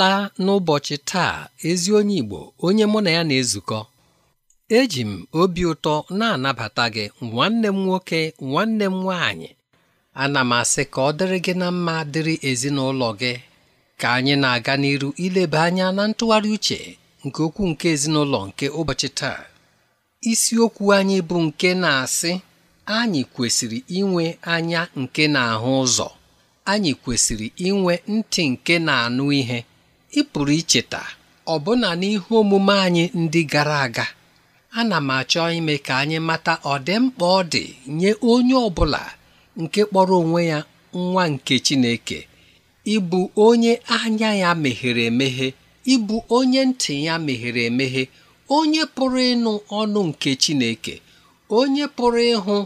abịala n'ụbọchị taa ezi onye Igbo onye mụ na ya na-ezukọ eji m obi ụtọ na-anabata gị nwanne m nwoke nwanne m nwaanyị ana m asị ka ọ dịrị gị na mma dịrị ezinụlọ gị ka anyị na-aga n'iru ileba anya na ntụgharị uche nke okwu nke ezinụlọ nke ụbọchị taa isiokwu anyị bụ nke na-asị anyị kwesịrị inwe anya nke na-ahụ ụzọ anyị kwesịrị inwe ntị nke na-anụ ihe ị pụrụ icheta ọbụna n'ihu omume anyị ndị gara aga ana m achọ ime ka anyị mata ọdịmkpa ọ dị nye onye ọ bụla nke kpọrọ onwe ya nwa nke Chineke ịbụ onye anya ya meghere emeghe ịbụ onye ntị ya meghere emeghe onye pụrụ ịnụ ọnụ nke Chineke onye pụrụ ịhụ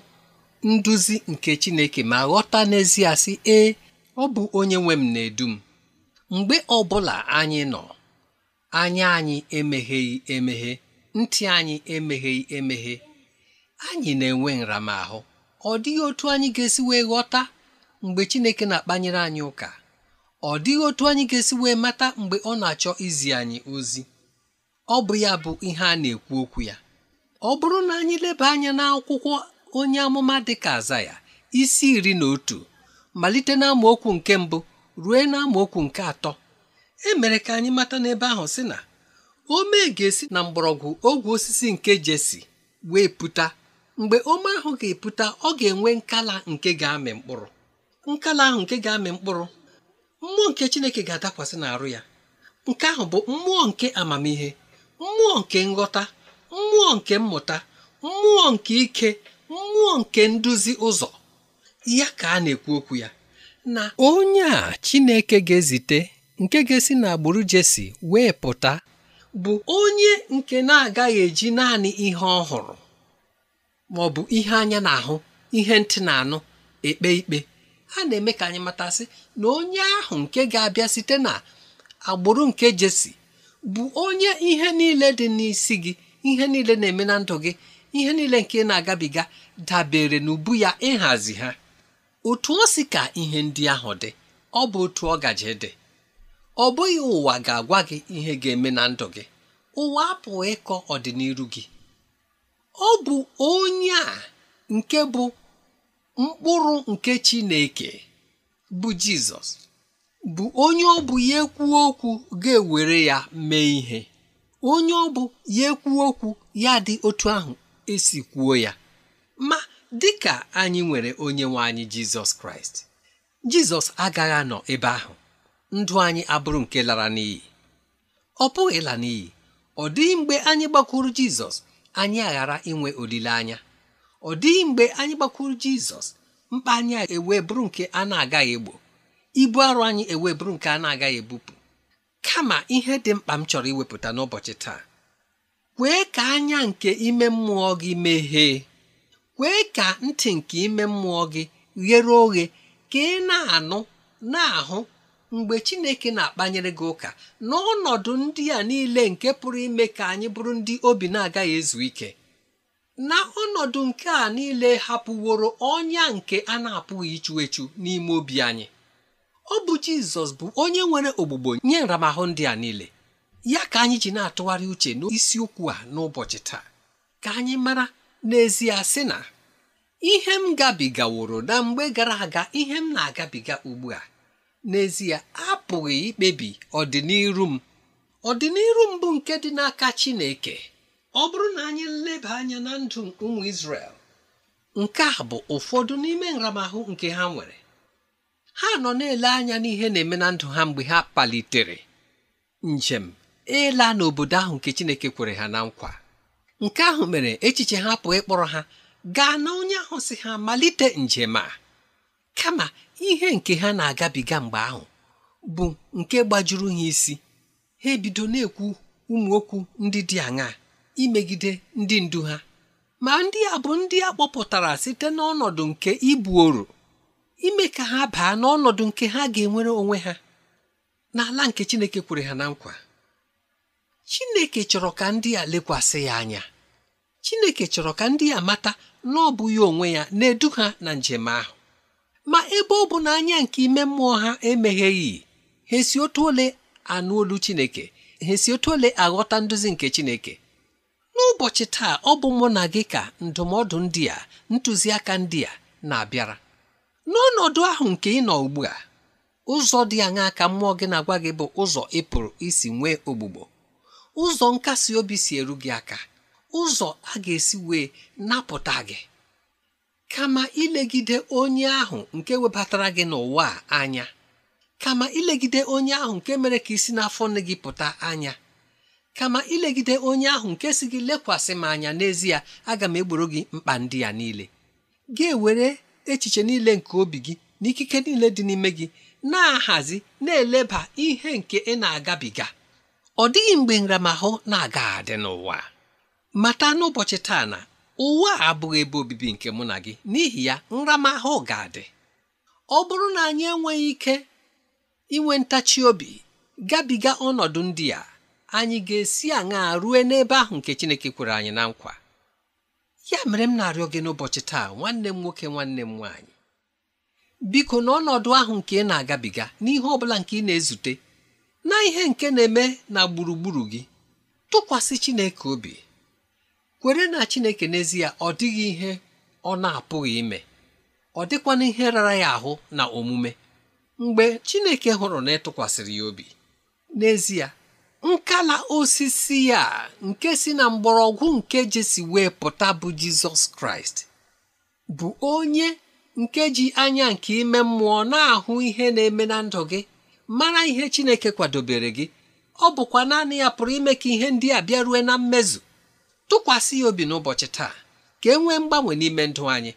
nduzi nke Chineke ma ghọta n'ezie sị ee ọ bụ onye nwe m na-edu m mgbe ọbụla anyị nọ anya anyị emegheghị emeghe ntị anyị emegheghị emeghe anyị na-enwe nramahụ ọ dịghị otu anyị ga-esi wee ghọta mgbe Chineke na-akpanyere anyị ụka ọ dịghị otu anyị ga-esi wee mata mgbe ọ na-achọ izi anyị ozi ọ bụ ya bụ ihe a na-ekwu okwu ya ọ bụrụ na anyị leba anya n'akwụkwọ onye amụma dịka aza ya isi iri na otu malite na okwu nke mbụ rue na nke atọ emere ka anyị mata n'ebe ahụ sị na ome ga-esi na mgbọrọgwụ ogwe osisi nke jesi wee pụta mgbe ome ahụ ga-epụta ọ ga-enwe nkala nke ga-amị mkpụrụ nkala ahụ nke ga-amị mkpụrụ mmụọ nke chineke ga-adakwasị n'arụ ya nke ahụ bụ mmụọ nke amamihe mmụọ nke nghọta mmụọ nke mmụta mmụọ nke ike mmụọ nke nduzi ụzọ ya ka a na-ekwu okwu ya na onye a Chineke ga-ezite nke ga-esi na agbụrụ Jesi wee pụta bụ onye nke na-agaghị eji naanị ihe ọhụrụ ma ọ bụ ihe anya na-ahụ ihe ntị na-anụ ekpe ikpe ha na-eme ka anyị matasị na onye ahụ nke ga-abịa site na agbụrụ nke Jesi bụ onye ihe niile dị n'isi gị ihe niile na-eme na ndụ gị ihe niile nke na-agabiga dabere n'ubu ya ịhazi ha otu o si ka ihe ndị ahụ dị ọ bụ otu ọ gaje dị ọ bụghị ụwa ga-agwa gị ihe ga-eme na ndụ gị ụwa apụghị ịkọ ọdịnihu gị ọ bụ onye a nke bụ mkpụrụ nke Chineke bụ Jizọs bụ onye ọ bụ ya ekwu okwu ga-ewere ya mee ihe onye ọ bụ ya ekwu okwu ya dị otu ahụ esi kwuo ya ma dị ka anyị nwere onye nwe anyị jizọs kraịst jizọs agaghị anọ ebe ahụ ndụ anyị abụrụ nke lara n'iyi ọ pụghị ịla n'iyi ọ dịghị mgbe anyị gbakwuru jizọs anyị aghara inwe olileanya ọ dịghị mgbe anyị gbakwuru jizọs mkpa anyị ewe bụrụ nke a na-agaghị egbo ibu arụ anyị ewee bụrụ nke a na-agaghị ebupụ kama ihe dị mkpa m chọrọ iwepụta n'ụbọchị taa kwee ka anya nke ime mmụọ gị meghee kwee ka ntị nke ime mmụọ gị ghere oghe ka ị na-anụ na-ahụ mgbe Chineke na-akpanyere gị ụka n'ọnọdụ ndị a niile nke pụrụ ime ka anyị bụrụ ndị obi na-agaghị ezu ike na ọnọdụ nke a niile hapụworo ọnya nke a na-apụghị ichu echu n'ime obi anyị ọ bụ Jizọs bụ onye nwere ogbugbo nye nramahụ ndị a niile ya ka anyị ji na-atụgharị uche n'isiokwu a n'ụbọchị taa ka anyị mara n'ezie sị na ihe m gabigaworo na mgbe gara aga ihe m na-agabiga ugbu a n'ezie apụghị ikpebi ọdịniru m ọdịniru m bụ nke dị n'aka Chineke ọ bụrụ na anyị nleba anya na ndụ ụmụ Izrel nke a bụ ụfọdụ n'ime nramahụ nke ha nwere ha nọ na-ele anya n'ihe na-eme na ndụ ha mgbe ha palitere njem ịla n'obodo ahụ nke Chineke kwere ha na nkwa nke ahụ mere echiche ha pụọ ịkpọrọ ha gaa na onye ahụ si ha malite njem a kama ihe nke ha na-agabiga mgbe ahụ bụ nke gbajuru ha isi ha ebido na-ekwu ụmụ okwu ndị dị aṅaa imegide ndị ndu ha ma ndị a bụ ndị a kpọpụtara site n'ọnọdụ nke ibuoro ime ka ha baa n'ọnọdụ nke ha ga-enwere onwe ha n'ala nke Chineke kwere ha na nkwa Chineke chọrọ ka ndị a lekwasị ya anya chineke chọrọ ka ndị ya mata na ọ bụ ya onwe ya na-edu ha na njem ahụ ma ebe ọ bụ na anya nke ime mmụọ ha emegheghị ha esi otu ole anụ olu chineke ha esi otu ole aghọta nduzi nke chineke n'ụbọchị taa ọ bụ mụ na gị ka ndụmọdụ ndị a ntụziaka ndị a na-abịara n'ọnọdụ ahụ nke ị nọ ugbu a ụzọ dị aṅaa ka mmụọ gị na-agwa gị bụ ụzọ Ịpụrụ isi nwee ogbugbo ụzọ nkasi obi si eru gị aka ụzọ a ga-esi wee napụta gị kama ilegide onye ahụ nke webatara gị n'ụwa anya kama ilegide onye ahụ nke mere ka isi n'afọ nne gị pụta anya kama ilegide onye ahụ nke si gị lekwasị m anya n'ezie aga m egboro gị mkpa ndị ya niile gị ewere echiche niile nke obi gị na ikike niile dị n'ime gị na-ahazi na-eleba ihe nke ị na-agabiga ọ dịghị mgbe nramahụ na-aga adị n'ụwa mata n'ụbọchị taa na ụwa a abụghị ebe obibi nke mụ na gị n'ihi ya nramahụ ga-adị ọ bụrụ na anyị enweghị ike inwe ntachi obi gabiga ọnọdụ ndị a anyị ga-esi aṅaa rue n'ebe ahụ nke Chineke kwere anyị na nkwa ya mere m na-arịọ gị n'ụbọchị taa nwanne m nwoke nwanne m nwaanyị biko na ọnọdụ ahụ nke ị na-agabiga n'ihe ọ bụla nke ị na-ezute na ihe nke na-eme na gburugburu gị tụkwasị Chineke obi kwere na chineke n'ezie ọ dịghị ihe ọ na-apụghị ime ọ dịkwana ihe rara ya ahụ na omume mgbe chineke hụrụ na ịtụkwasịrị ya obi n'ezie nkala osisi ya nke si na mgbọrọgwụ nke jesi wee pụta bụ jizọs kraịst bụ onye nke ji anya nke ime mmụọ na-ahụ ihe na-eme na ndụ gị mara ihe chineke kwadobere gị ọ bụkwa naanị ya pụrụ ime ka ihe ndị a bịa rue na mmezu tụkwasị ya obi n'ụbọchị taa ka e nwee mgbanwe n'ime ndụ anyị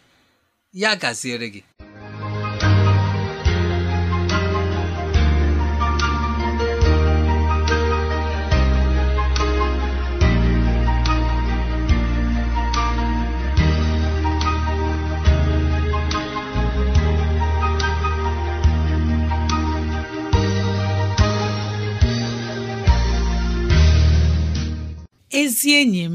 ya gaziere gị ezi enyi m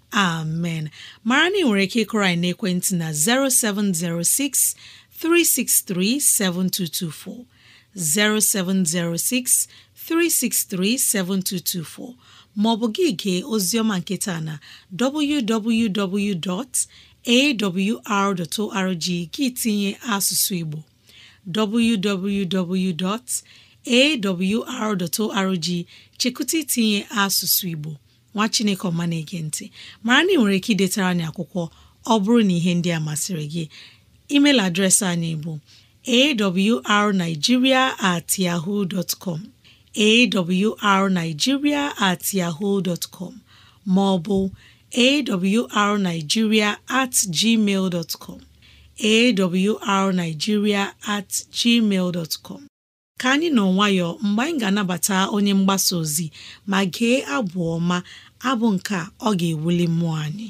amen mara na nwere ike ịkụrọ anyị n'ekwentị na 0706 363 0706 363 7224 maọbụ gị gee oziọma nketa na www.awr.org gị tinye asụsụ Igbo www.awr.org chekụta itinye asụsụ Igbo nwa chineke ọma na-ege ntị mara na ị nwere ike idetara anyị akwụkwọ ọ bụrụ na ihe ndị a masịrị gị email adreesị anyị bụ arigiria at at com ma ọ bụ at com at gmail ka anyị nọ nwayọ mgbe anyị ga-anabata onye mgbasa ozi ma gee abụ ọma abụ nke ọ ga-ewuli mmụọ anyị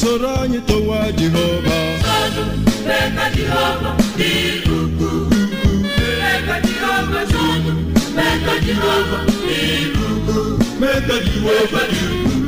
soro anyị towa jehova mee ka jehova dị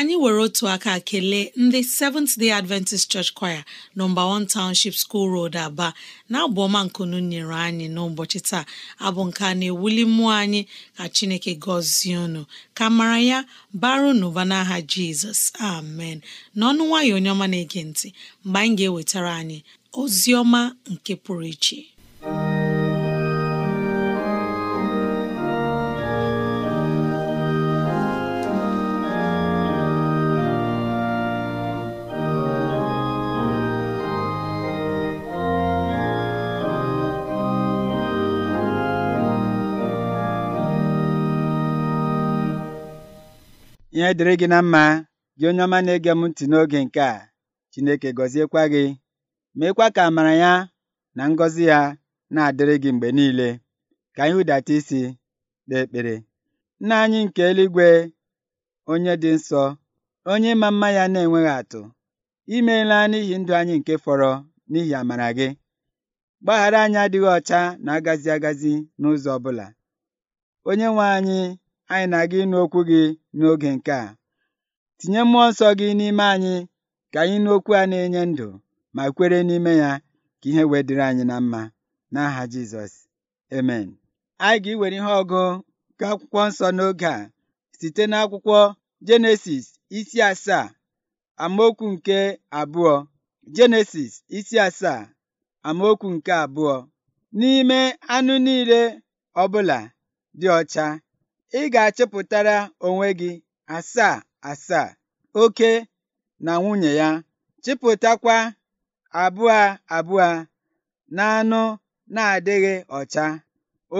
anyị were otu aka kelee ndị Seventh Day Adventist Church Choir nọmba 1 Township School Road Aba na-abụ nkunu nyere anyị n'ụbọchị taa abụ nke a na-ewuli mmụọ anyị ka Chineke gọzie unu ka mara ya baro n'ụba n'aha Jizọs amen n'ọnụ nwayọ onye ọma na-ege ntị mgbe anyị ga-ewetara anyị ozi ọma nke pụrụ iche ihe dịrị gị na mma gị onye ọma na-ege m ntị n'oge nke a Chineke gọziekwa gị meekwa ka amara ya na ngọzi ya na-adịrị gị mgbe niile ka anyị hụdata isi kpee ekpere nna anyị nke eluigwe onye dị nsọ onye ma mma ya na-enweghị atụ imeela n'ihi ndụ anyị nke fọrọ n'ihi amara gị gbaghara anyị adịghị ọcha na agazi agazi n'ụzọ ọbụla onye nwe anyị anyị na-aga ịnụ okwu gị n'oge nke a tinye mmụọ nsọ gị n'ime anyị ka anyị n'okwu a na-enye ndụ ma kwere n'ime ya ka ihe wee anyị na mma n'aha Jizọs amen anyị ga-iwere ihe ọgụ nke akwụkwọ nsọ n'oge a site n'akwụkwọ Jenesis isi asaa amaokwu nke abụọ Jenesis isi asaa amaokwu nke abụọ n'ime anụ niile ọ bụla dị ọcha ị ga-achịpụtara onwe gị asaa asaa oke na nwunye ya chịpụtakwa abụọ abụọ na anụ na-adịghị ọcha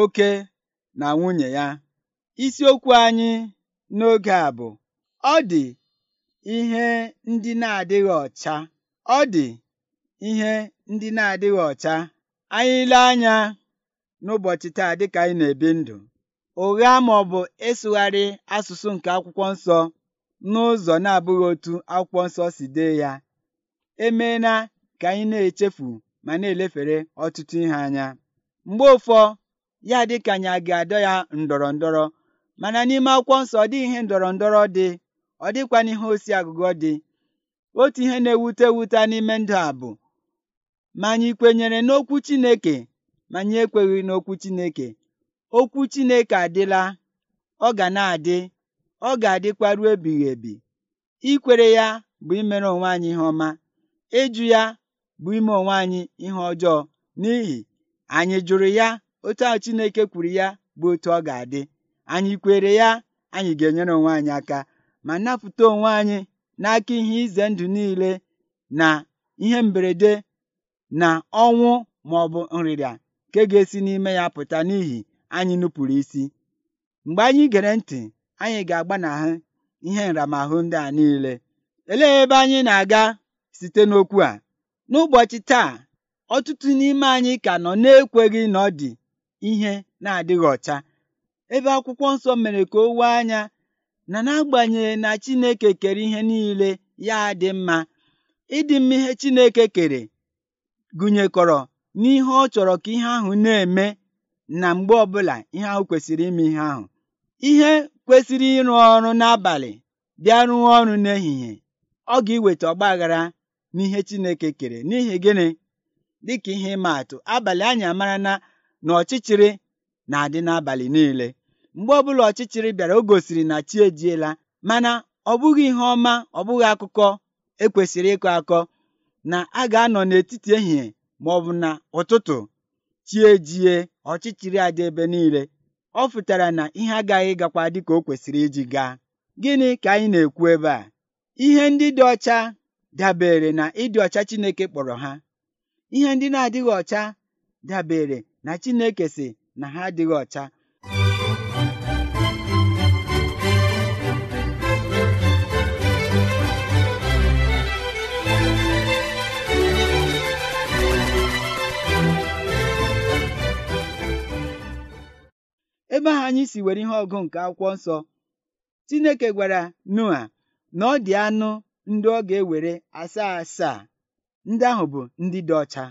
oke na nwunye ya isiokwu anyị n'oge a bụ ọ dị ihe ndị na-adịghị ọcha ọ dị ihe ndị na-adịghị ọcha anyị ile anya n'ụbọchị taa dịka anyị na-ebi ndụ ụgha ma ọ bụ ịsụgharị asụsụ nke akwụkwọ nsọ n'ụzọ na-abụghị otu akwụkwọ nsọ si dee ya emeela ka anyị na-echefu ma na-elefere ọtụtụ ihe anya mgbe ụfọ ya dị ka anyị a ga-adọ ya ndọrọ ndọrọ mana n'ime akwụkwọ nsọ ọ dịghị ihe ndọrọ ndọrọ dị ọ dịkwa n'ihe osi agụgọ dị otu ihe na-ewute ewute n'ime ndụ a bụ ma anyị kwenyere n'okwu Chineke ma anyị ekweghị n'okwu Chineke Okwu Chineke adịla, ọ ga na-adị, ọ ga-adịkwa ruo ebighị ebi. Ikwere ya bụ imere onwe anyị ihe ọma. Ịjụ ya bụ ime onwe anyị ihe ọjọọ n'ihi anyị jụrụ ya otu ahụ Chineke kwuru ya bụ otu ọ ga-adị. Anyị kwere ya anyị ga-enyere onwe anyị aka ma napụta onwe anyị n'aka ihe ize ndụ niile na ihe mberede na ọnwụ ma ọ bụ nrịrịa nke ga-esi n'ime ya pụta n'ihi anyị nupụrụ isi mgbe anyị gere ntị anyị ga-agbanahụ ihe nramahụ ndị a niile elee ebe anyị na-aga site n'okwu a n'ụbọchị taa ọtụtụ n'ime anyị ka nọ na-ekweghị na ọ dị ihe na-adịghị ọcha ebe akwụkwọ nsọ mere ka o wee anya na n'agbanyeghị na Chineke kere ihe niile ya dị mma ịdị mma ihe Chineke kere gụnyekọrọ n'ihe ọ chọrọ ka ihe ahụ na-eme na mgbe ọbụla ihe ahụ kwesịrị ime ihe ahụ ihe kwesịrị ịrụ ọrụ n'abalị bịa rụọ ọrụ n'ehihie ọ ga-iweta ọgbaghara n'ihe Chineke kere n'ihi gịnị dịka ihe ịma atụ abalị anyị amara na na ọchịchịrị na-adị n'abalị niile mgbe ọbụla ọchịchịrị bịara o gosiri na chi ejiela mana ọ bụghị ihe ọma ọ bụghị akụkọ ekwesịrị ịkọ akọ na a ga-anọ n'etiti ehihie ma ọ bụ na ụtụtụ chie jie ọchịchịrị adị ebe niile ọ fụtara na ihe agaghị gakwa dị ka o kwesịrị iji gaa gịnị ka anyị na-ekwu ebe a ihe ndị dị ọcha dabere na ịdị ọcha Chineke kpọrọ ha ihe ndị na-adịghị ọcha dabere na Chineke si na ha adịghị ọcha ebe ahụ anyị si were ihe ọgụ nke akwụkwọ nsọ Chineke gwara Noa na ọ dị anụ ndị ọ ga-ewere asaa asaa ndị ahụ bụ ndị dị ọcha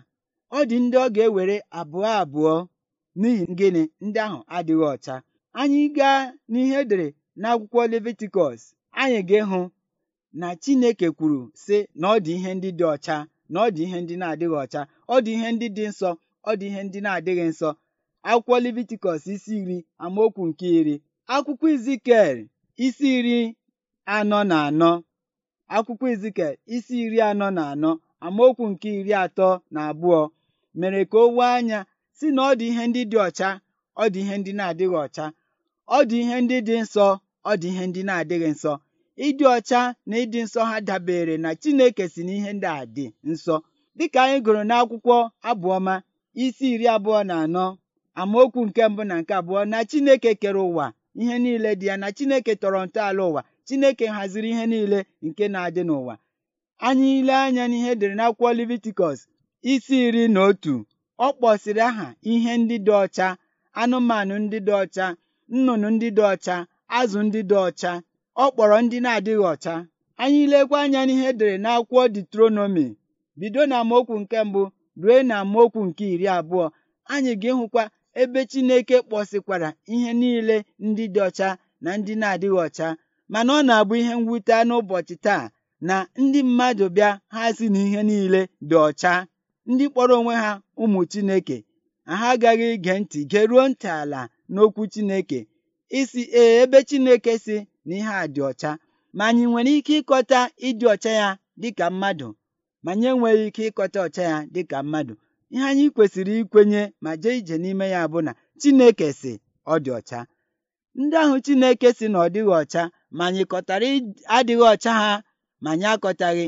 ọ dị ndị ọ ga-ewere abụọ abụọ n'ihi gịnị ndị ahụ adịghị ọcha anyị gaa n'ihe edere n'akwụkwọ Levitikọs anyị ga-ịhụ na Chineke kwuru sị na ọ dị ihe ndị dị ọcha na ọ dị ihe ndị na-adịghị ọcha ọ dị ihe ndị dị nsọ ọ dị ihe ndị na-adịghị nsọ akwụkwọ Levitikọs isi iri amaokwu nke iri akwụkwọ Izikel isi iri anọ na anọ akwụkwọ Izikel isi iri anọ na anọ amaokwu nke iri atọ na abụọ mere ka o wee anya si na ọ dị ihe ndị dị ọcha ọ dị ihe ndị na-adịghị ọcha ọ dị ihe ndị dị nsọ ọ dị ihe ndị na-adịghị nsọ ịdị ọcha na ịdị nsọ ha dabere na Chineke si na ihe ndị a dị nsọ dịka anyị gụrụ n'akwụkwọ abụọma isi iri abụọ na anọ amaokwu nke mbụ na nke abụọ na Chineke kere ụwa ihe niile dị ya na Chineke tọrọ ntọala ụwa Chineke haziri ihe niile nke na-adị n'ụwa anyị ile anya n'ihe dere n'akwụkwọ Leviticus isi iri na otu ọ kpọsiri aha ihe ndị dị ọcha anụmanụ ndị dị ọcha nnụnụ ndị dị ọcha azụ ndị dị ọcha ọ kpọrọ ndị na-adịghị ọcha anyị ilekwa anya n'ihe na n'akwụkwọ detronomi bido na amaokwu nke mbụ rue na amaokwu nke iri abụọ anyị ga-ịhụkwa ebe Chineke kpọsịkwara ihe niile ndị dị ọcha na ndị na-adịghị ọcha mana ọ na-abụ ihe mwute n'ụbọchị taa na ndị mmadụ bịa ha si na ihe niile dị ọcha ndị kpọrọ onwe ha ụmụ Chineke ha agaghị ige ntị geruo ntị ala n'okwu Chineke isi ee ebe Chineke si na ihe a dị ọcha ma anyị nwere ike ịkọta ịdị ọcha ya dịka mmadụ ma anyị enweghị ike ịkọta ọcha ya dịka mmadụ ihe anyị kwesịrị ikwenye ma jee ije n'ime ya bụ na Chineke si ọ dị ọcha ndị ahụ Chineke si na ọ dịghị ọcha ma anyị kọtara adịghị ọcha ha ma anyị akọtaghị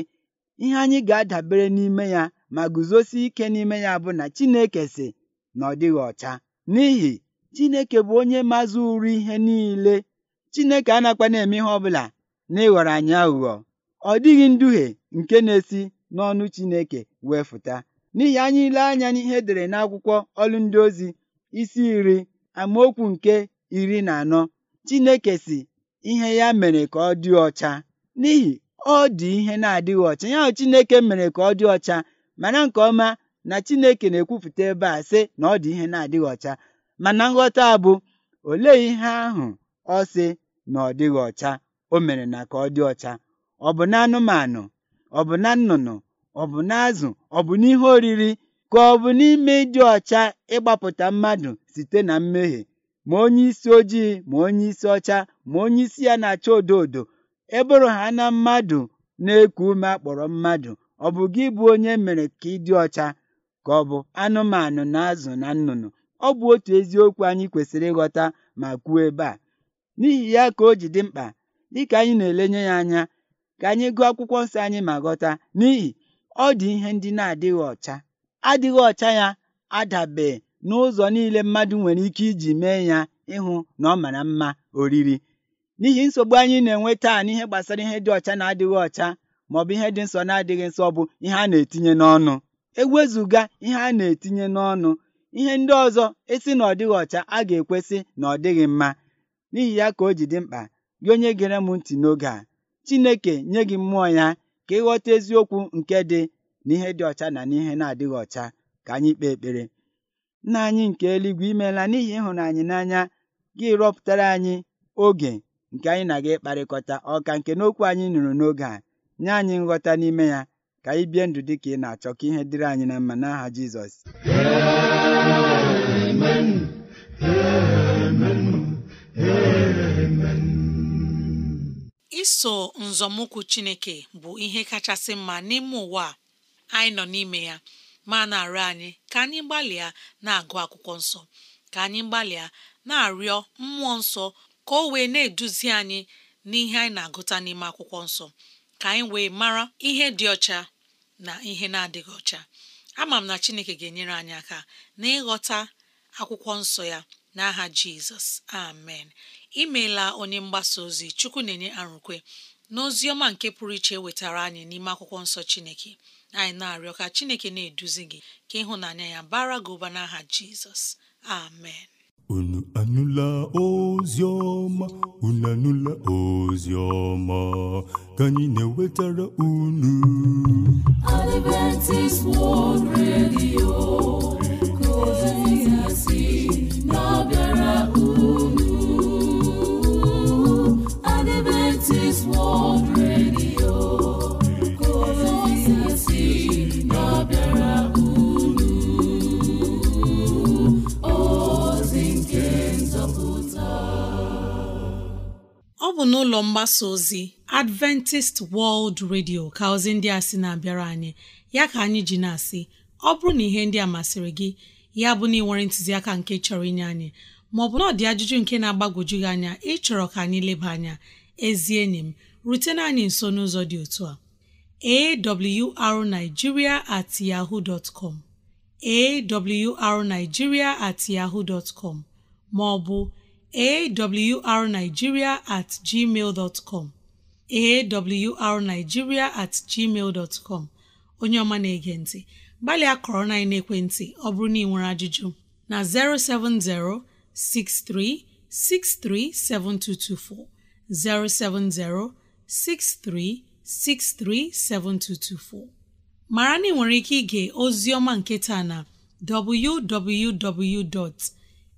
ihe anyị ga-adabere n'ime ya ma guzosie ike n'ime ya bụ na Chineke si na ọ dịghị ọcha n'ihi Chineke bụ onye mazụ uru ihe niile Chineke anakwa na-eme ihe ọbụla na ịghọrọ anyị aghụghọ ọ dịghị nduhie nke na-esi n'ọnụ Chineke wee fụta N'ihi anyị ile anya n'ihe dere n'akwụkwọ ọrụ ndị ozi isi iri amaokwu nke iri na anọ Chineke si ihe ya mere ka ọ dị ọcha n'ihi ọ dị ihe na-adịghị ọcha ya Chineke mere ka ọ dị ọcha mana nke ọma na Chineke na-ekwupụta ebe a sị na ọ dị ihe na-adịghị ọcha mana nghọta bụ olee ihe ahụ ọ sị na ọ dịghị ọcha o mere na ka ọ dị ọcha ọ bụ na anụmanụ ọ bụ na nnụnụ ọ bụ n'azụ ọ bụ n'ihe oriri ka ọ bụ n'ime ịdị ọcha ịgbapụta mmadụ site na mmehie ma onye isi ojii ma onye isi ọcha ma onye isi ya na-acha odo odo e bụrụ ha na mmadụ na-eku ume akpọrọ mmadụ ọ bụ gị bụ onye mere ka ịdị ọcha ka ọ bụ anụmanụ na azụ na nnụnụ ọ bụ otu eziokwu anyị kwesịrị ịghọta ma kwuo ebe a n'ihi ya ka o ji dị mkpa dịka anyị na-elenye ya anya ka anyị gụọ akwụkwọ nsọ anyị ma ghọta n'ihi ọ dị ihe ndị na-adịghị ọcha adịghị ọcha ya adabe n'ụzọ niile mmadụ nwere ike iji mee ya ịhụ na ọ mara mma oriri n'ihi nsogbu anyị na-enwe taa n'ihe gbasara ihe dị ọcha na adịghị ọ bụ ihe dị nsọ na adịghị nsọ bụ ihe a na-etinye n'ọnụ ewezùga ihe a na-etinye n'ọnụ ihe ndị ọzọ esi na ọ dịghị a ga-ekwesị na ọ dịghị mma n'ihi ya ka o ji dị mkpa gị onye gere m ntị n'oge a Chineke nye gị mmụọ ya ka ịghọta eziokwu nke dị n'ihe dị ọcha na n'ihe na-adịghị ọcha ka anyị kpee ekpere nna anyị nke eluigwe imeela n'ihi ịhụnanya n'anya gị rọpụtara anyị oge nke anyị na-aga ịkparịkọta ọka nke n'okwu anyị nụrụ n'oge a nye anyị nghọta n'ime ya ka anyị bie ndụ dị ka ị na-achọ ka ihe dịrị anyị na mma n'aha Jizọs iso nzọmụkwụ chineke bụ ihe kachasị mma n'ime ụwa a anyị nọ n'ime ya ma na-arịọ anyị ka anyị gbalịa na-agụ akwụkwọ nsọ ka anyị gbalịa na-arịọ mmụọ nsọ ka o wee na-eduzi anyị n'ihe anyị na-agụta n'ime akwụkwọ nsọ ka anyị wee mara ihe dị ọcha na ihe na-adịghị ọcha ama m na chineke ga-enyere anyị aka n'ịghọta akwụkwọ nsọ ya n'aha jizọs amen imeela onye mgbasa ozi chukwu na-enye arụkwe n'ozi ọma nke pụrụ iche e wetara anyị n'ime akwụkwọ nsọ chineke anyị na-arịọ ka chineke na-eduzi gị ka ịhụnanya ya bara gị ụba n'aha jizọs amen unu anụla ozi ọma unu anụla ozi ka anyị na-ewetara unu bụ n'ụlọ mgbasa ozi Adventist World Radio ka ozi ndị a sị na-abịara anyị ya ka anyị ji na-asị ọ bụrụ na ihe ndị a masịrị gị ya bụ na ị nwere ntụziaka nke chọrọ inye anyị maọbụ na ọ dị ajụjụ nke na agbagoju gị anya ịchọrọ ka anyị leba anya ezi enyi m rutena anyị nso n'ụzọ dị otu a arigiria at yahoo com at yaho dot maọbụ awrnigeria at gmail awrnigeria at gmail dot onye ọma na-ege ntị gbalịa kọrọ na ekwentị ọ bụrụ na ị nwere ajụjụ na 070 6363 7224 070 6363 7224 mara ike ige ozi ọma nke taa na www.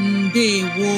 ndewo